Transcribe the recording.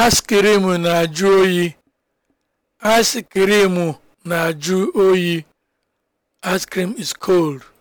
Aịskrim na-ajụ oyi. Aịskrim na-ajụ oyi. Ice cream is cold.